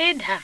ịda